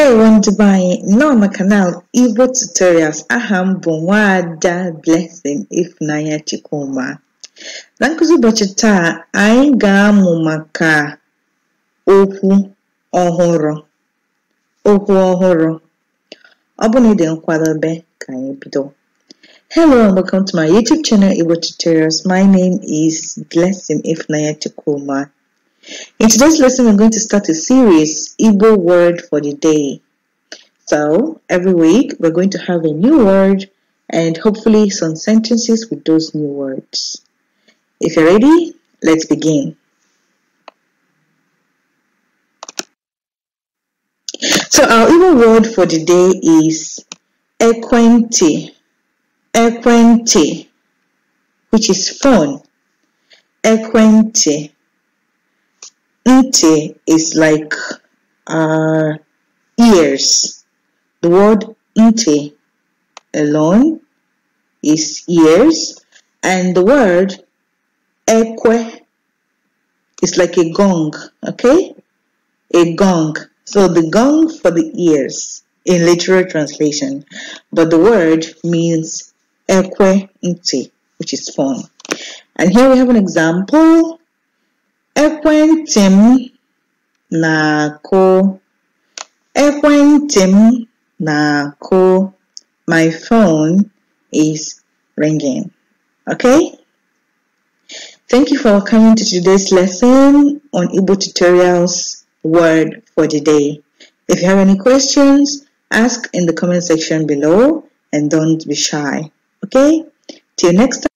ndewo ndị be anyị nọ na kanal igbo tutorials aha m nwaada blessing ifunanya chukwuma na nkụzi ụbọchị taa anyị ga-amụ maka okwu ọhụrụ okwu ọhụrụ ọ na ị dị ka anyị bido hello and welcome to my youtube channel igbo tutorials my name is blessing ifunanya chukwuma In today's lesson, we're going to start a series, Igbo Word for the Day. So, every week, we're going to have a new word and hopefully some sentences with those new words. If you're ready, let's begin. So, our Igbo word for the day is Ekwenti, Ekwenti, which is phone. Ekwenti. Ite is like uh, ears. The word Ite alone is ears. And the word eque is like a gong, okay? A gong. So the gong for the ears in literal translation. But the word means eque Ite, which is phone. And here we have an example Ekwentị m na-akụ Ekwentị m na-akụ My phone is ringing. Okay? Thank you for coming to today's lesson on Igbo tutorials word for the day. If you have any questions, ask in the comment section below and don't be shy. Okay? Till next time.